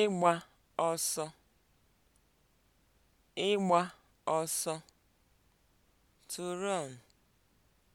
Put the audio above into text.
ịgba ọsọ ịgba ọsọ (to